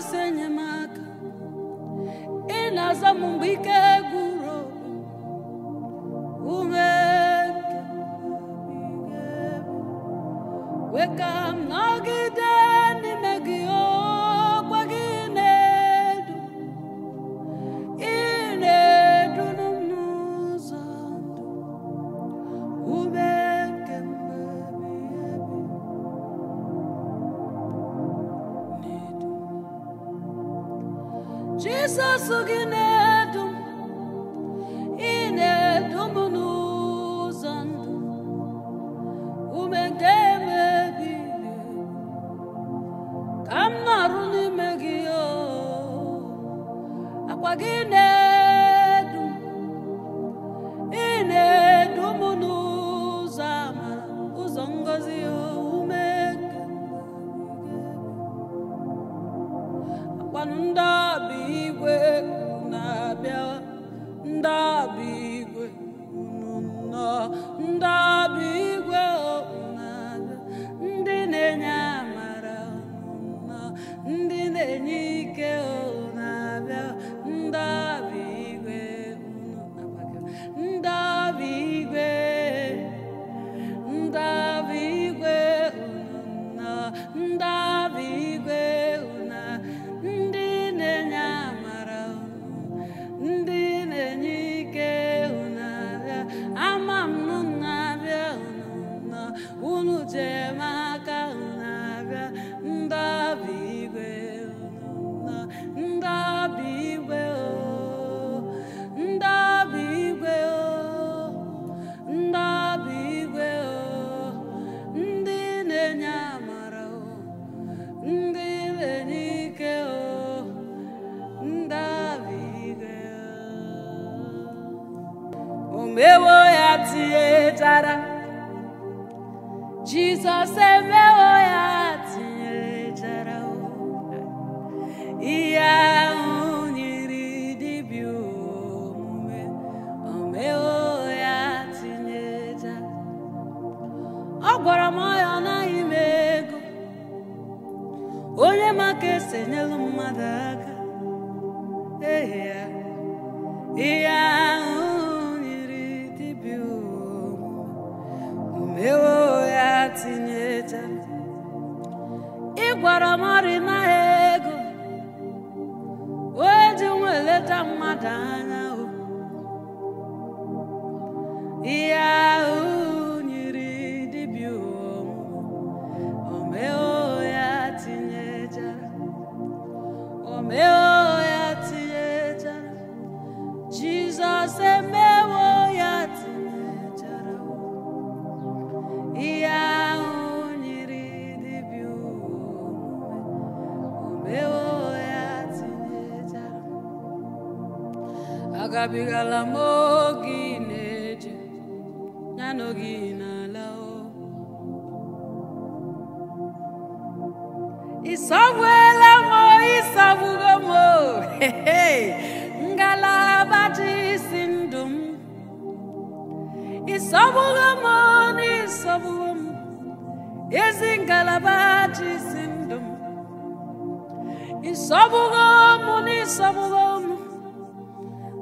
arụsị enyemaka ị na-aza m mgbe ike gwụrụ ume weka Jizọs gị na-edu m ị na-edu m n'ụzọ ndụ ume nke emebi ka m nọrụ n'ime gị akwa gị na edum m ị na-edu m n'ụzọ amara ụzọ ngọzi ume nke akwanụ ndị n'ọba igwe tinyecha ị gwara m ọrịnaghị ego wee ji nwa eleta mmadụ anya ihe agabigala m na-eje na oge ị na-ala o ịsọgbuela m ịsọgbugo m o ngalaba dị isi ndụ m ịsọgbugo m n'ịsọgbugo m ezi ngalaba dị isi ndụ m ịsọgbugo m n'ịsọgbugo m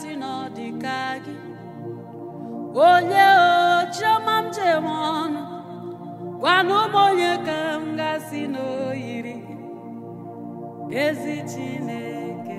si na gị onye o chioma m jewe ọnụ gwana ụmụ onye ka m gasị na oyiri ezi Chineke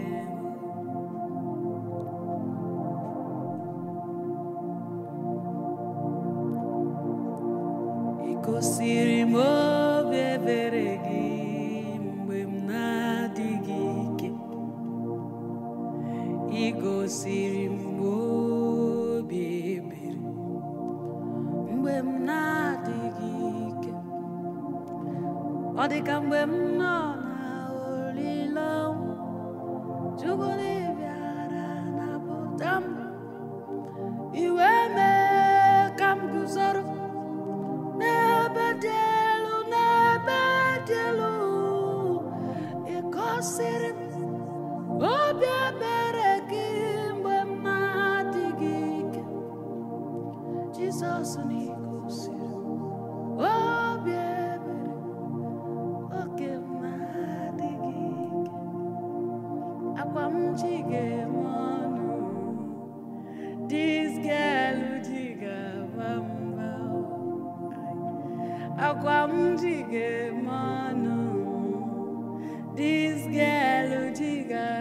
ọ dị ka mgbe m nọ na olileọnwụ chukwu na-ebịara napụta m iwe mee ka m guzoro n'ebe dị elu n'ebe dị elu ịkọsịrị obi ebere gị mgbe m na ike jizọs na-egosi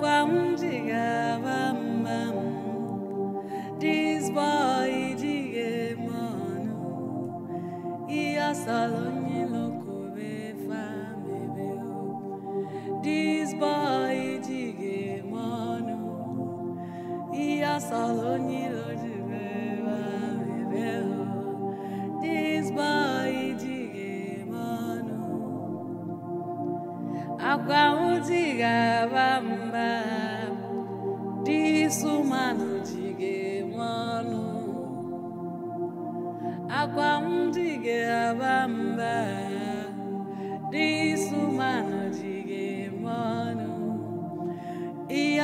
kwa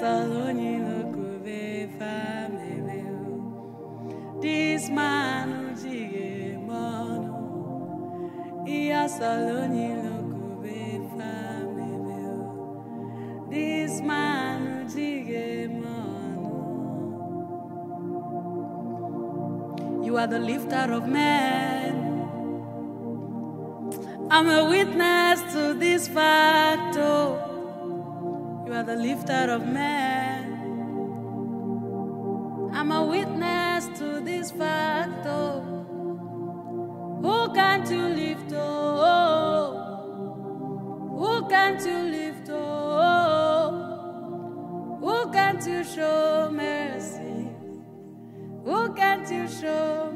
Thessalonians. This man This man You are the lifter of men I'm a witness to this fact, oh. are the lifter of men. I'm a witness to this fact, oh. Who can't you lift, oh? Who can't you lift, oh? Who can't you show mercy? Who can't you show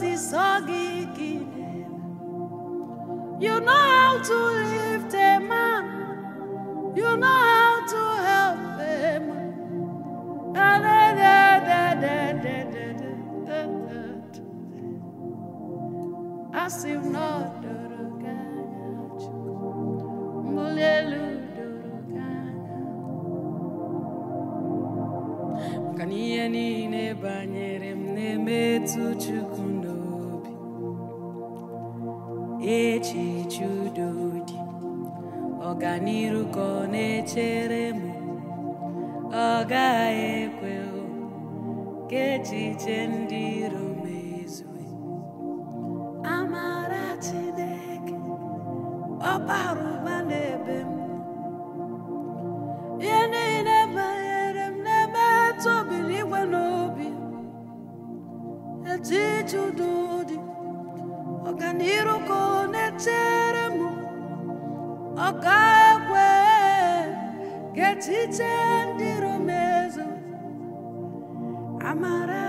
Osisogi Kinem. You know how to lift a man, you know how to help him. As if not. ka n'ihe niile banyere m na-emetụ Chukwu n'obi echiche udo dị ọganiru ka ọ na-echere m ọ gaghị ekwe ka echiche ndị iro m amara Chineke ọ ọ ga ndị Romezo amara